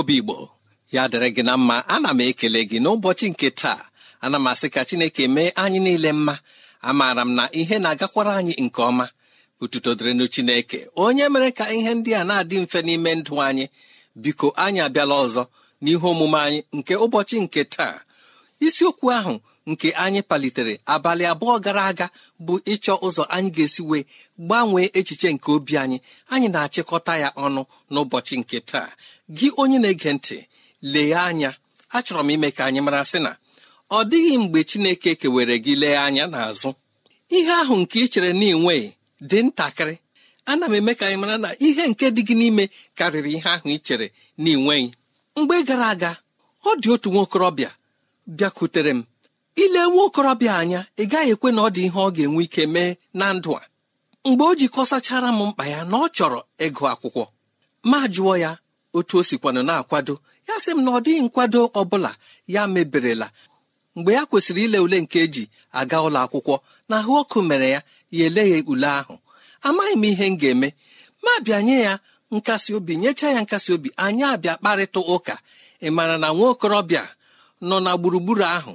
obi igbo ya dịrị gị na mma ana m ekele gị n'ụbọchị nke taa ana m asị ka chineke mee anyị niile mma amaara m na ihe na-agakwara anyị nke ọma otuto dịrịnụ chineke onye mere ka ihe ndị a na-adị mfe n'ime ndụ anyị biko anyị abịala ọzọ n'ihe omume anyị nke ụbọchị nke taa isiokwu ahụ nke anyị palitere abalị abụọ gara aga bụ ịchọ ụzọ anyị ga-esi wee gbanwee echiche nke obi anyị anyị na-achịkọta ya ọnụ n'ụbọchị nke taa gị onye na-ege ntị lee anya achọrọ m ime ka anyị mara sị na ọ dịghị mgbe Chineke kewere gị lee anya n'azụ ihe ahụ nke ị chere na ịnweghị dị ntakịrị ana m eme ka anyị mara na ihe nke dị gị n'ime karịrị ihe ahụ ị chere na mgbe gara aga ọ dị otu nwokorobịa bịakwutere m ile nwa okorobịa anya ị gaghị ekwe na ọ dị ihe ọ ga-enwe ike mee na ndụ a mgbe o jikọsachara m mkpa ya na ọ chọrọ ịgụ akwụkwọ ma jụọ ya otu o sikwanụ na-akwado ya sị m na ọ dịghị nkwado ọ bụla ya meberela mgbe ya kwesịrị ile ule nke eji aga ụlọ akwụkwọ na ahụ ọkụ mere ya ya eleghị ule ahụ amaghị m ihe m ga-eme ma bịa nye ya nkasi obi nyechaa ya nkasi obi anyị abịa kparịta ụka ị maara na nwa okorobịa nọ na gburugburu ahụ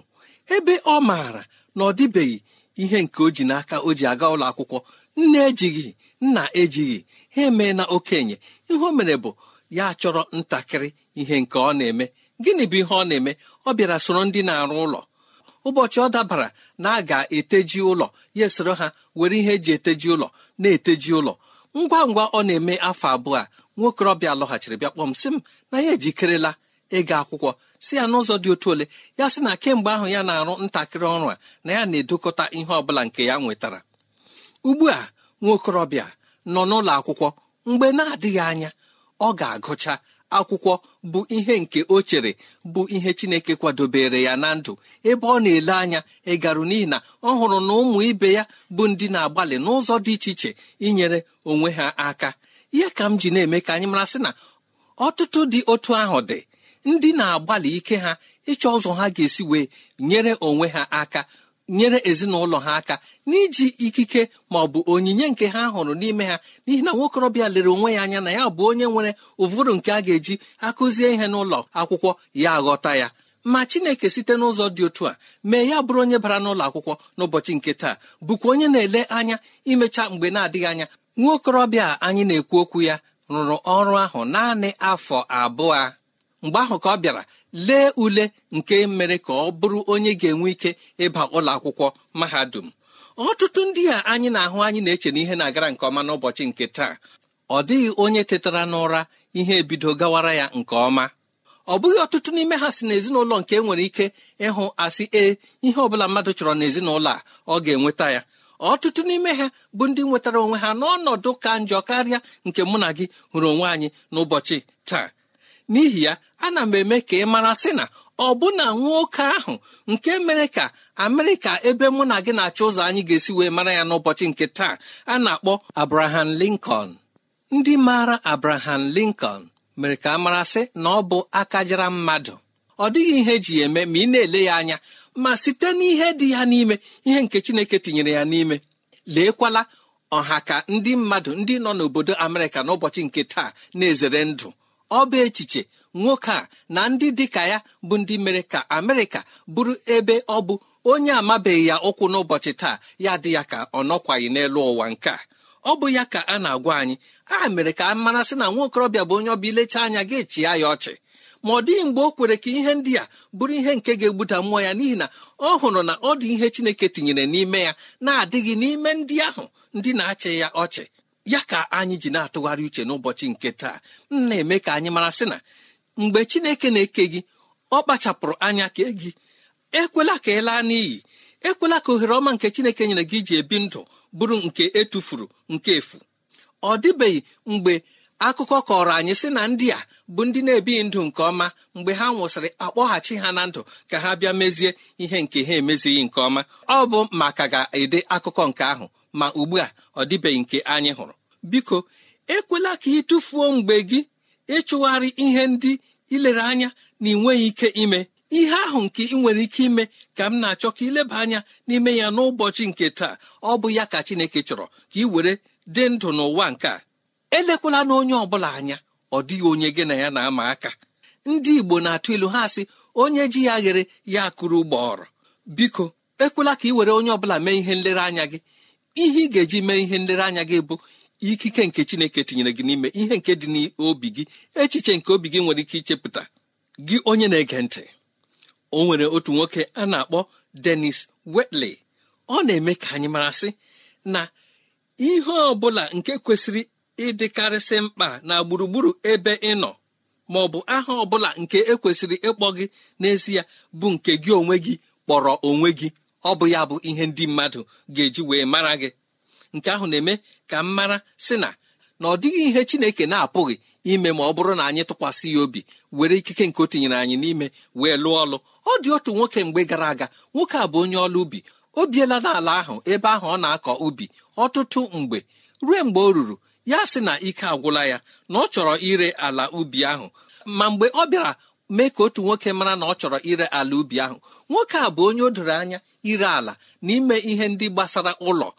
ebe ọ maara na ọ dịbeghị ihe nke o ji n'aka o ji aga ụlọ akwụkwọ nne ejighị nna ejighị ha emee na okenye ihe o mere bụ ya chọrọ ntakịrị ihe nke ọ na-eme gịnị bụ ihe ọ na-eme ọ bịara soro ndị na-arụ ụlọ ụbọchị ọ dabara na a ga-eteji ụlọ ya esoro ha were ihe eji eteji ụlọ na-eteji ụlọ ngwa ngwa ọ na-eme afọ abụọ a nwaokorobịa lọghachiri bịa kpọm sị m na ya ejikerela ịga akwụkwọ si ya n'ụzọ dị otu ole ya sị na kemgbe ahụ ya na-arụ ntakịrị ọrụ a na ya na-edokọta ihe ọ bụla nke ya nwetara ugbu a nwaokorobịa nọ n'ụlọ akwụkwọ mgbe na-adịghị anya ọ ga-agụcha akwụkwọ bụ ihe nke o chere bụ ihe chineke kwadobere ya na ndụ ebe ọ na-ele anya ịgarụ n'ihi na ọ hụrụ na ụmụ ibe ya bụ ndị na-agbalị n'ụzọ dị iche iche inyere onwe ha aka ihe ka m ji na-eme ka anyị mara sị na ọtụtụ dị otu ahụ dị ndị na-agbalị ike ha ịchọ ụzọ ha ga-esi wee nyere onwe ha aka nyere ezinụlọ ha aka n'iji ikike ma ọ bụ onyinye nke ha hụrụ n'ime ha n'ihi na nwokorobịa lere onwe ya anya na ya bụ onye nwere ụvụrụ nke a ga-eji akụzie ihe n'ụlọ akwụkwọ ya ghọta ya ma chineke site n'ụzọ dị otu a mee ya bụrụ onye bara n'ụlọ akwụkwọ n'ụbọchị nke taa bụkwa onye na-ele anya imecha mgbe na-adịghị anya nwaokorobịa anyị na-ekwu okwu ya rụrụ ọrụ ahụ naanị afọ abụọ mgbe ahụ ka ọ bịara lee ule nke mere ka ọ bụrụ onye ga-enwe ike ịba ụlọ akwụkwọ mahadum ọtụtụ ndị a anyị na-ahụ anyị na-eche na ihe na-agara nke ọma n'ụbọchị nke taa ọ dịghị onye tetara n'ụra ihe ebido gawara ya nke ọma ọ bụghị ọtụtụ n'ime ha si n'ezinụlọ nke e nwere ike ịhụ asị ee ihe ọbụla mmadụ chọrọ n'ezinụlọ a ọ ga-enweta ya ọtụtụ n'ime ha bụ ndị nwetara onwe ha n'ọnọdụ ka njọ karịa nke mụ na gị hụrụ onwe anyị n'ụbọchị taa n'ihi ya ana m eme ka ị mara sị na ọbụna nwoke ahụ nke mere ka amerịka ebe mụ na gị na-achọ ụzọ anyị ga-esi wee mara ya n'ụbọchị nke taa a na-akpọ abraham lincoln ndị maara abraham lincoln mere ka a mara sị na ọ bụ akajara mmadụ ọ dịghị ihe eji eme ma ị na-ele ya anya ma site n'ihe dị ya n'ime ihe nke chineke tinyere ya n'ime leekwala ọha ka ndị mmadụ ndị nọ n'obodo amerịka n'ụbọchị nke taa na-ezere ndụ ọ bụ echiche nwoke a na ndị dịka ya bụ ndị mere ka amerịka bụrụ ebe ọ bụ onye amabeghị ya ụkwụ n'ụbọchị taa ya dị ya ka ọ nọkwaghị n'elu ụwa nke a ọ bụ ya ka a na-agwa anyị a mere ka a mara sị na nwa okorobịa bụ onye ọbịa ilecha anya ga chịa ya ọchị ma ọ dịghị mgbe o kwere ka ihe ndị a bụrụ ihe nke ga-egbuda mmụọ ya n'ihi na ọ hụrụ na ọ dị ihe chineke tinyere n'ime ya na-adịghị n'ime ndị ahụ ndị na-achị ya ọchị ya ka anyị ji na-atụgharị uche n'ụbọchị nke taa m na-eme ka anyị mara sị na mgbe chineke na-eke gị ọ kpachapụrụ anya kee gị ekwela ka ị laa n'iyi ekwela ka ohere ọma nke chineke nyere gị ji ebi ndụ bụrụ nke etufuru nke efu ọ dịbeghị mgbe akụkọ kọrọ anyị sị na ndị a bụ ndị na-ebighị ndụ nke ọma mgbe ha nwụsịrị akpọghachi ha na ndụ ka ha bịa mezie ihe nke ha emezighị nke ọma ọ bụ maka ga-ede akụkọ nke ahụ ma ugbu a ọ dịbeghị nke anyị hụrụ biko ekwela ka ị tụfuo mgbe gị ịchụgharị ihe ndị ilere anya na ị ike ime ihe ahụ nke ị nwere ike ime ka m na-achọ ka ileba anya n'ime ya n'ụbọchị nke taa ọ bụ ya ka Chineke chọrọ ka ị were dị ndụ n'ụwa nke a elekwala na onye ọbụla anya ọ dịghị onye gị na ya na-ama aka ndị Igbo na-atụ ilu ha sị onye ji ya ghere ya akụrụ ụgbọọrọ biko ekwela ka ị were onye ọbụla mee ihe nlereanya gị ihe ị ga-eji mee ihe nlereanya gị bụ ikike nke chineke tinyere gị n'ime ihe nke dị n'obi gị echiche nke obi gị nwere ike ichepụta gị onye na-ege ntị o nwere otu nwoke a na-akpọ denis Wetley ọ na-eme ka anyị mara sị na ihe ọ bụla nke kwesịrị ịdịkarịsị mkpa na gburugburu ebe ị nọ ma ọ bụ aha ọ bụla nke ekwesịrị ịkpọ gị n'ezie bụ nke gị onwe gị kpọrọ onwe gị ọ bụ ya bụ ihe ndị mmadụ ga-eji wee mara gị nke ahụ na-eme ka m mara sị na na ọ dịghị ihe chineke na-apụghị ime ma ọ bụrụ na anyị tụkwasị ya obi were ikike nke o tinyere anyị n'ime wee lụọ ọlụ ọ dị otu nwoke mgbe gara aga nwoke a bụ onye ọlụ ubi o biela n'ala ahụ ebe ahụ ọ na-akọ ubi ọtụtụ mgbe ruo mgbe o ruru ya sị na ike agwụla ya na ọ chọrọ ire ala ubi ahụ ma mgbe ọ bịara mee ka otu nwoke mara na ọ chọrọ ire ala ubi ahụ nwoke a bụ onye o doro anya ire ala n'ime ihe ndị gbasara ụlọ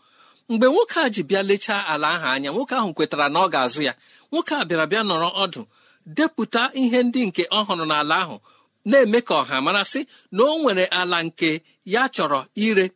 mgbe nwoke a ji bịa lechaa ala ahụ anya nwoke ahụ kwetara na ọ ga-azụ ya nwoke a bịara bịa nọrọ ọdụ depụta ihe ndị nke ọ hụrụ n'ala ahụ na-eme ka ọha mara sị na o nwere ala nke ya chọrọ ire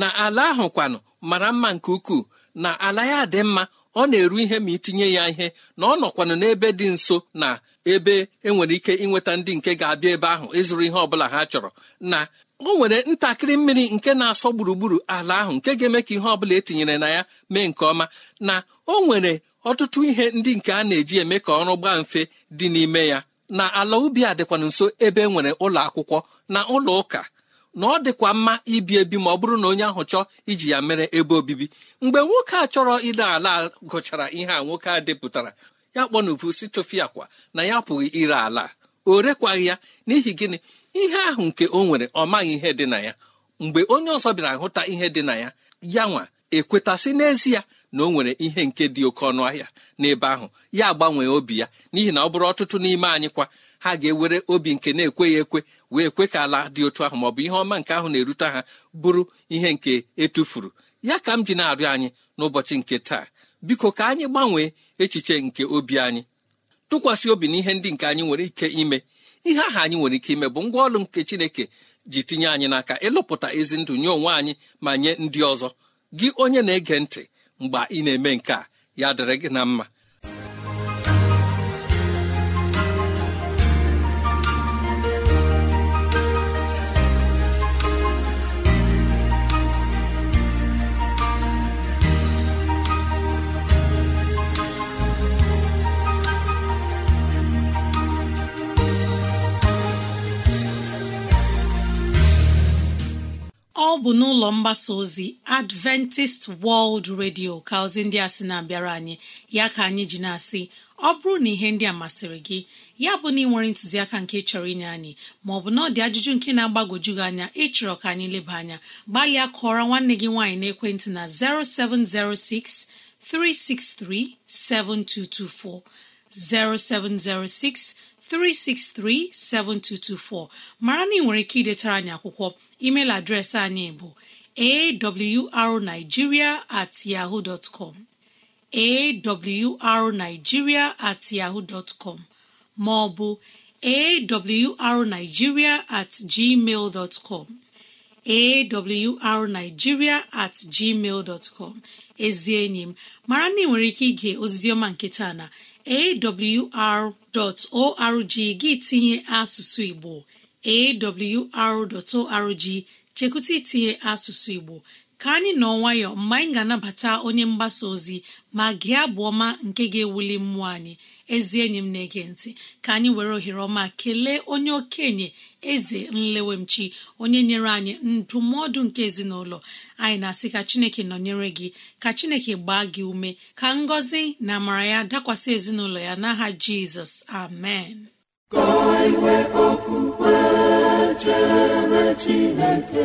na ala ahụ kwanụ mara mma nke ukwuu na ala ya dị mma ọ na-eru ihe ma itinye ya ihe na ọ nọkwanụ n'ebe dị nso na ebe enwere ike inweta ndị nke ga-abịa ebe ahụ ịzụrụ ihe ọbụla ha chọrọ na o nwere ntakịrị mmiri nke na-asọ gburugburu ala ahụ nke ga-eme ka ihe ọ bụla etinyere na ya mee nke ọma na o nwere ọtụtụ ihe ndị nke a na-eji eme ka ọrụ gbaa mfe dị n'ime ya na ala ubi a dịkwa nso ebe e nwere ụlọ akwụkwọ na ụlọ ụka na ọ dịkwa mma ibi ebi ma ọ bụrụ na onye ahụ chọọ iji ya mere ebe obibi mgbe nwoke a chọrọ ile ala gụchara ihe a nwoke a depụtara ya kpọnuvu si tụfịa akwa na ya apụghị ire ala o rekwaghị ya n'ihi gịnị ihe ahụ nke o nwere ọ maghị ihe dị na ya mgbe onye ọzọ bịara hụta ihe dị na ya ya nwa ekwetasị n'ezie na o nwere ihe nke dị oke ọnụ ahịa n'ebe ahụ ya gbanwee obi ya n'ihi na ọ bụrụ ọtụtụ n'ime anyị kwa ha ga-ewere obi nke na-ekweghị ekwe wee kwe ka ala dị otu ahụ ma ọ bụ ihe ọma nke ahụ na-erute ha bụrụ ihe nke etufuru ya ka m ji na-arịọ anyị n'ụbọchị nke taa biko ka anyị gbanwee echiche nke obi anyị tụkwasị obi na ihe ndị nke anyị nwere ike ime ihe aha anyị nwere ike ime bụ ngwa ọrụ nke chineke ji tinye anyị n'aka ịlụpụta ezi ndụ nye onwe anyị ma nye ndị ọzọ gị onye na-ege ntị mgbe ị na-eme nke a ya dịrị gị na mma bụ n'ụlọ mgbasa ozi adventist world radio ka ozi ndị a sị na-abịara anyị ya ka anyị ji na-asị ọ bụrụ na ihe ndị a masịrị gị ya bụ na ị nwere ntụziaka nke chọrọ inye anyị maọbụ na ọ dị ajụjụ nke na-agbagwoju gị anya ịchọrọ ka anyị leba anya gbalịa kụọra nwanne gị nwaanyị n'ekwentị na 0706 363 7224 363-7224 mara na nwere ike idetara anyị akwụkwọ email adreesị anyị bụ arigiria at com at yaho com ma ọ bụ at gmail com awrnigeria at gmail dot com ezi enyi m mara na ị nwere ike ige ozizioma nke taa na awr.org gị tinye asụsụ Igbo awr.org chekwụta itinye asụsụ Igbo ka anyị nọ nwayọọ mgbe anyị ga-anabata onye mgbasa ozi ma gị abụ ọma nke ga-ewuli mmụọ anyị ezi enyi m na-ege ntị ka anyị were ohere ọma kelee onye okenye eze nlewemchi onye nyere anyị ndụmọdụ nke ezinụlọ anyị na-asị ka chineke nọnyere gị ka chineke gbaa gị ume ka ngọzi na amara ya dakwasị ezinụlọ ya n'aha jizọs amen chineke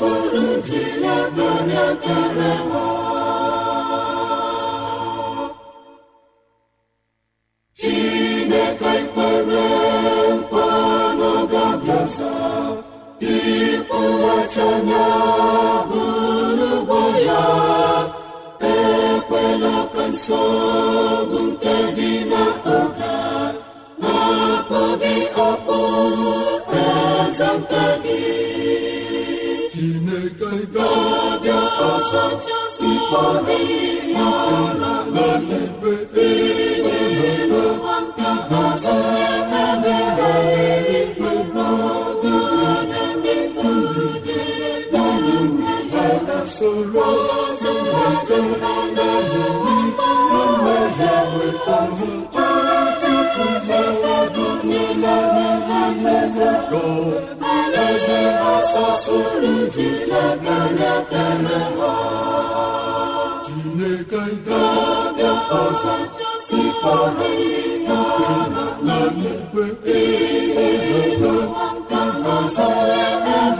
soro jiri ebe onye ikpọrịrị sụrụ jijeganadereha chineke ga-abịa ọzọ ikpeọhụrụnanaikpe eeeeaazaa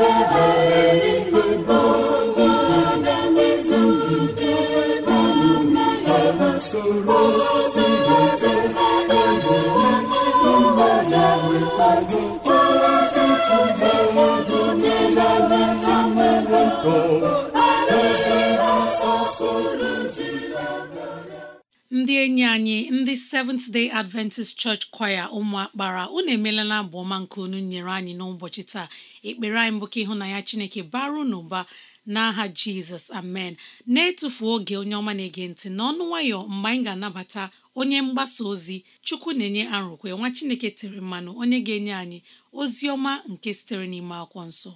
ndị enyi anyị ndị Seventh Day Adventist Church Choir ụmụakpara unu emelala abụ ọma nke unu nyere anyị n'ụbọchị taa ekpere anyị mbụ ka ya Chineke bara n'ụba n'aha Jizọs amen na-etufu oge onye ọma na-ege ntị n'ọnụ nwayọ mgbe anyị ga-anabata onye mgbasa ozi Chukwu na-enye arụkwe nwa Chineke tere mmanụ onye ga-enye anyị ozi ọma nke sitere n'ime akwụkwọ nsọ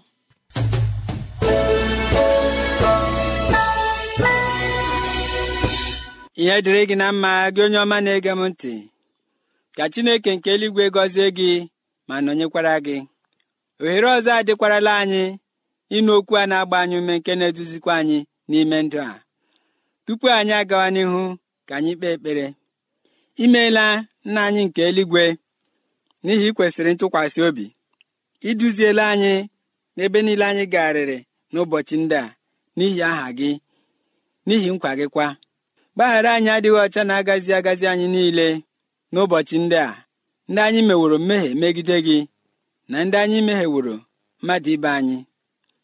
ihe dịrị gị na mma gị onye ọma na-ege m ntị ka chineke nke eluigwe gọzie gị ma nọnyekwara gị ohere ọzọ adịkwarala anyị ịnụ okwu a na-agba anyị ume nke na-eduzikwa anyị n'ime ndụ a tupu anyị agawa n'ihu ka anyị kpee ekpere imeela nna anyị nke eluigwe n'ihi ikwesịrị ntụkwasị obi iduziela anyị n'ebe niile anyị garịrị n'ụbọchị ndị a n'ihi aha gị n'ihi nkwa gị kwa gbaghara anyị adịghị ọcha na-agazi agazi anyị niile n'ụbọchị ndị a ndị anyị meworo mmehie megide gị na ndị anyị mehieworo mmadụ ibe anyị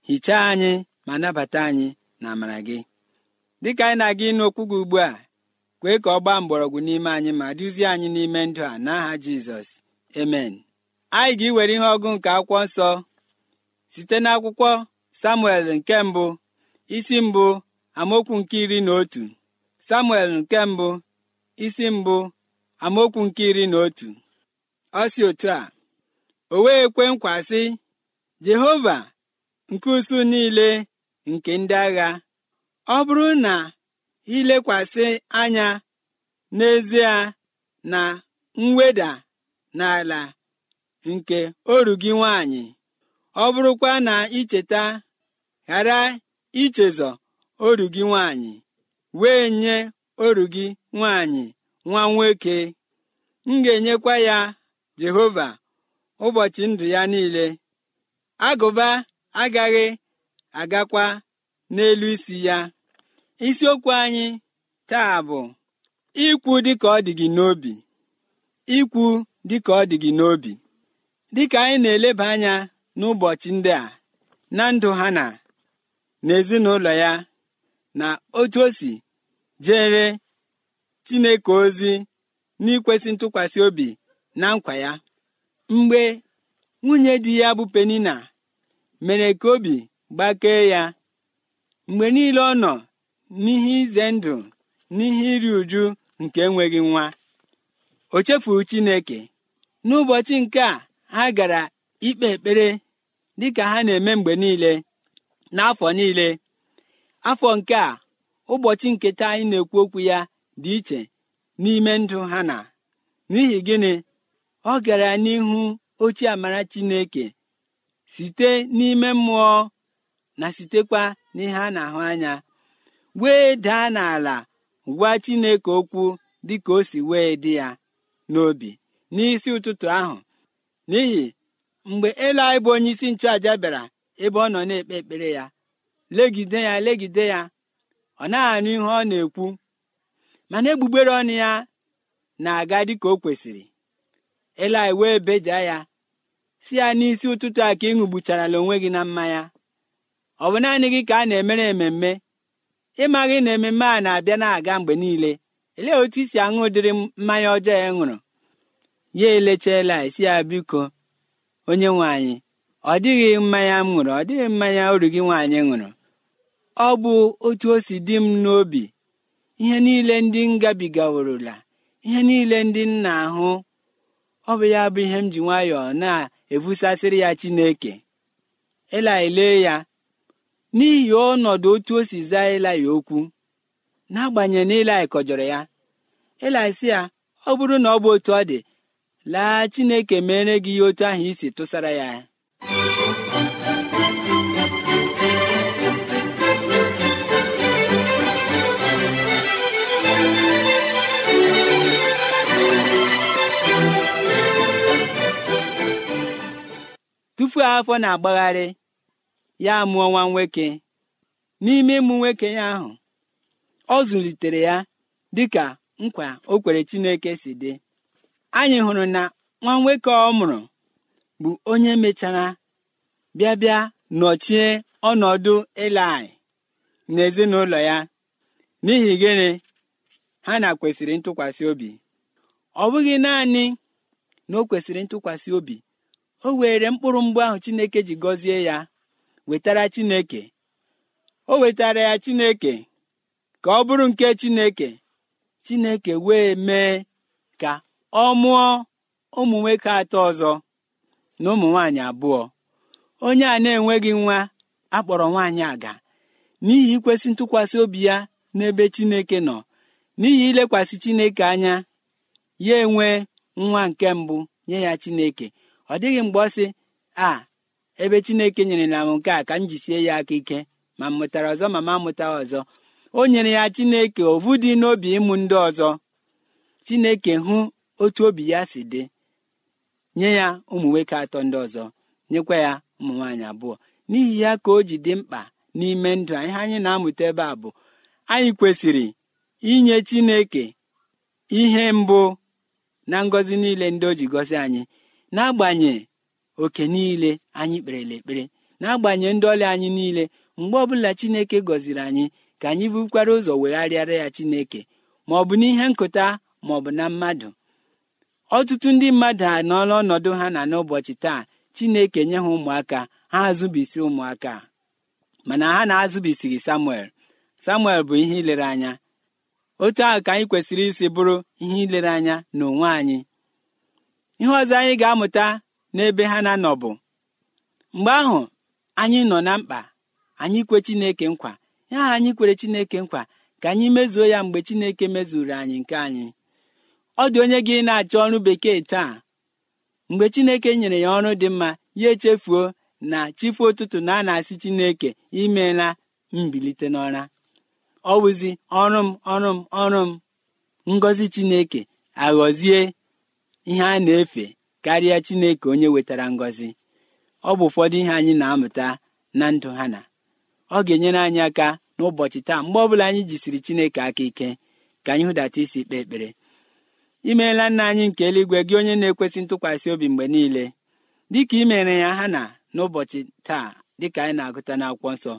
hichaa anyị ma nabata anyị na amara gị dịka anyị na-aga ịnụ okwu gị ugbu a kwee ka ọ gbaa mgbọrọgwụ n'ime anyị ma duzie anyị n'ime ndụ a n'aha jizọs emen anyị ga-iwere ihe ọgụ nke akwụkwọ nsọ site n'akwụkwọ samuel nke mbụ isi mbụ amaokwu nke iri na otu samuel nke mbụ isi mbụ amaokwu nke iri na otu ọ si otu a o wee kwe nkwa jehova nke usu niile nke ndị agha ọ bụrụ na ilekwasị anya n'ezie na mweda n'ala nke oru gị nwanyị ọ bụrụkwa na icheta ghara ichezọ oru gị nwanyị wee nye oru gị nwaanyị nwa nwoke m ga-enyekwa ya jehova ụbọchị ndụ ya niile agụba agaghị agakwa n'elu isi ya isiokwu anyị taa bụ ikwu dịka ọ dị gị n'obi ikwu dịka ọ dị gị n'obi dịka anyị na-eleba anya n'ụbọchị ndị a na ndụ ha na n'ezinụlọ ya na otu o si jere chineke ozi n'ikwesị ntụkwasị obi na nkwa ya mgbe nwunye di ya bụ penina mere ka obi gbakee ya mgbe niile ọ nọ n'ihe ize ndụ n'ihe iri uju nke enweghị nwa o chefuru chineke n'ụbọchị nke a ha gara ikpe ekpere dịka ha na-eme mgbe niile n'afọ niile afọ nke a ụbọchị nketa anyị na-ekwu okwu ya dị iche n'ime ndụ ha na n'ihi gịnị ọ gara n'ihu ochie amara chineke site n'ime mmụọ na sitekwa n'ihe a na-ahụ anya wee daa n'ala gwa chineke okwu dị ka o si wee dị ya n'obi n'isi ụtụtụ ahụ n'ihi mgbe elu anyị bụ onye isi nchụaja bịara ebe ọ nọ na-ekpe ekpere ya legide ya legide ya ọ na anụ ihe ọ na-ekwu mana egbugbere ọnụ ya na-aga dịka o kwesịrị Eli wee beja ya si ya n'isi ụtụtụ a ka ị ṅụgbucharala onwe gị na mmanya ọ bụ naanị gị ka a na-emere ememme ịmaghị na ememme a na-abịa na-aga mgbe niile elee otu isi aṅụ ụdịrị mmanya ọjọọ ya ṅụrụ ya elechaela isi ya biko onye nwe anyị ọ dịghị mmanya m ṅụrụ ọ dịghị mmanya oru gị nwaanyị ṅụrụ ọ bụ otu o si dị m n'obi ihe niile ndị m gabigaworola ihe niile ndị nna ahụ ọ bụ ya bụ ihe m ji nwayọọ na-ebusasịrị ya chineke ele ya n'ihi ọnọdụ otu o si zaa elai okwu n'agbanyeghị na ilai kọjọrọ ya elai ya ọ bụrụ na ọ bụ otu ọ dị laa chineke mere gị otu ahụ isi tụsara ya tufuo afọ na-agbagharị ya mụọ nwa nwoke n'ime ịmụ nwoke ya ahụ ọ zụlitere ya dịka nkwa o kwere chineke si dị anyị hụrụ na nwa nwoke ọ mụrụ bụ onye mechara bịa bịa nọchie ọnọdụ na n'ezinụlọ ya n'ihi gịnị ha na kwesịrị ntụkwasị obi ọ bụghị naanị na o kwesịrị ntụkwasị obi o were mkpụrụ mgbe ahụ chineke ji gọzie ya wetara chineke o wetara ya chineke ka ọ bụrụ nke chineke chineke wee mee ka ọ mụọ ụmụ nwoke atọ ọzọ na ụmụ nwaanyị abụọ onye a na-enweghị nwa akpọrọ nwaanyị aga n'ihi ikwesị ntụkwasị obi ya n'ebe chineke nọ n'ihi ilekwasị chineke anya ya enwe nwa nke mbụ nye ya chineke ọ dịghị mgbe ọ sị a ebe chineke nyere na m nke a ka m jisie ya aka ike ma m mụtara ọzọ ma ma mụta ọzọ o nyere ya chineke ovu dị n'obi ịmụ ndị ọzọ chineke hụ otu obi ya si dị nye ya ụmụ nwoke atọ ndị ọzọ nyekwa ya ụmụ nwaanyị abụọ n'ihi ya ka o ji dị mkpa n'ime ndụ ihe anyị na-amụta ebe a bụ anyị kwesịrị inye chineke ihe mbụ na ngọzi niile ndị o ji gọzi anyị n'agbanye oke niile anyị kperela ekpere n'agbanyeghị ndị ọrịa anyị niile mgbe ọbụla chineke gọziri anyị ka anyị bukwara ụzọ wegharịara ya chineke ma ọ bụ n'ihe nkụta ma ọ bụ na mmadụ ọtụtụ ndị mmadụ anọọla ọnọdụ ha na n'ụbọchị taa chineke nye ha ụmụaka ha azụbisi ụmụaka mana ha na-azụbisighị samuel samuel bụ ihe ilere anya otu ahụ ka anyị kwesịrị isi bụrụ ihe ilere anya n'onwe anyị ihe ọzọ anyị ga-amụta n'ebe ha na-anọ bụ mgbe ahụ anyị nọ na mkpa anyị kwe chineke nkwa ya anyị kwere chineke nkwa ka anyị mezuo ya mgbe chineke mezuru anyị nke anyị ọ dị onye gị na-achọ ọrụ bekee taa mgbe chineke nyere ya ọrụ dị mma ya echefuo na chifu ụtụtụ na a na-asị chineke imela mbilite n'ọra ọ wụzi ọrụ m ọrụ m ọrụ m ngọzi chineke aghọzie ihe a na-efe karịa Chineke onye wetara ngọzi ọ bụ ụfọdụ ihe anyị na-amụta na ndụ ha na ọ ga-enyere anyị aka n'ụbọchị taa mgbe ọbụla anyị jisiri Chineke aka ike ka anyị hụdata isi kpee ekpere imeela nna anyị nke eluigwe gị onye na-ekwesị ntụkwasị obi mgbe niile dịka imere mere ya ha na n'ụbọchị taa dịka anyị na-agụta na-akwọ nsọ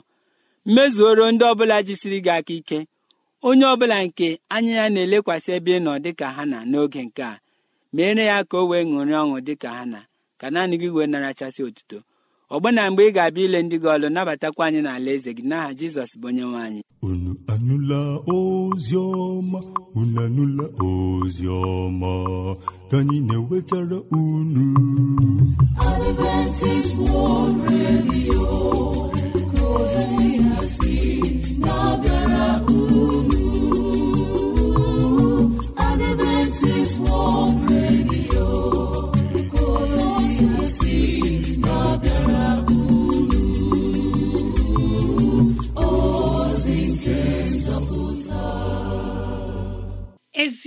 mmezuoro ndị ọbụla jisiri gị aka ike onye ọbụla nke anya ya na-elekwasị ebe ị nọ dịka ha na n'oge nke a meere ya ka o wee ṅụrị ọṅụ dị ka ha na ka naanị gị wee narachasị otuto ọgbọ na mgbe ị ga-abịa ile ndị gị ọlụ nabatakwa anyị n'ala eze gị n'aha jizọs bụ onye nwaanyị. anyị unu anụla ozi ọma unu anụla ozi ọma ka anyị na-ewetara unu Adventist World Radio ezi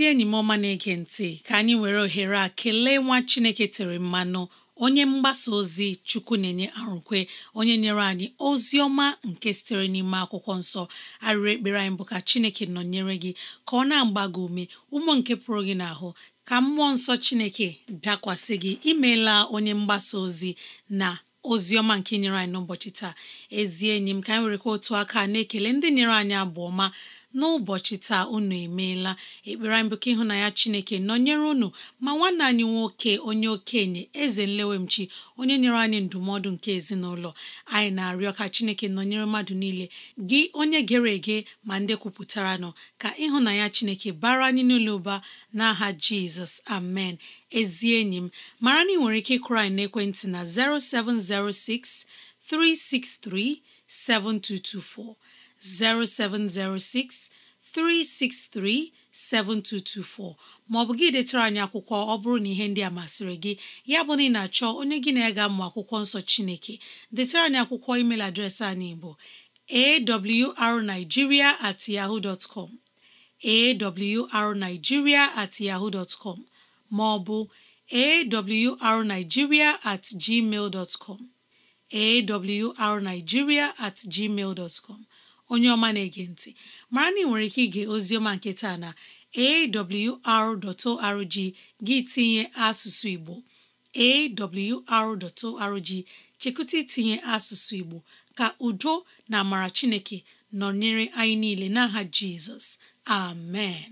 enyi m ọma na-ege ntị ka anyị were ohere a kelee nwa chineke tere mmanụ onye mgbasa ozi chukwu na-enye arụkwe onye nyere anyị ozi ọma nke sitere n'ime akwụkwọ nsọ arịrị ekpere anyị bụ ka chineke nọnyere gị ka ọ na-agba gị ume ụmụ nke pụrụ gị n'ahụ ka mmụọ nsọ chineke dakwasị gị imeela onye mgbasa ozi na ozi ọma nke nyere anyị n'ụbọchị taa ezi enyi m ka anyị werekwa otu aka na-ekele ndị nyere anyị abụ ọma n'ụbọchị taa unu emeela ekpere mbụ ka ịhụnanya Chineke nọnyere unu ma nwanne anyị nwoke onye okenye eze nlewemchi onye nyere anyị ndụmọdụ nke ezinụlọ anyị na-arịọ ka Chineke nọnyere mmadụ niile gị onye gere ege ma ndị kwupụtara nọ ka ịhụnanya Chineke bara anyị n'ụlọ ụba n'aha Jizọs amen ezi enyi m mara na ị nwere ike ịkụrụ anyị n'ekwentị na 0706 363 7224 0706 363 7224 maọbụ gị detara anyị akwụkwọ ọ bụrụ na ihe ndị a masịrị gị ya bụ na ị na-achọ onye gị na-ega mmụ akwụkwọ nsọ Chineke detara anyị akwụkwọ email adreesị anyị bụ arigiria at yahoo dot com awrnigeria at yahoo dot maọbụ awrnigeria at gmail com awrnigeria at gmail dot com onye ọma na-ege ntị mara na ị nwere ike ige oziọma nke taa na awr.org gị tinye asụsụ Igbo awr.org chekụta itinye asụsụ Igbo ka udo na amara Chineke nọnyere anyị niile n'aha Jizọs amen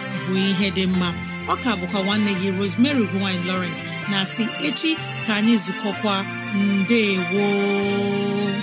bụ ihe dị mma ọ ọka bụkwa nwanne gị Rosemary gine lowrence na si echi ka anyị zukọkwa mbe gboo